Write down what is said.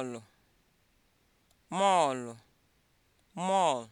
mọọlụ mọọlụ mọọl